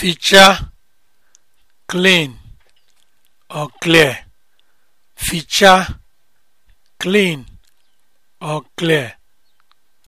ficha clean or clear ficha clean or clear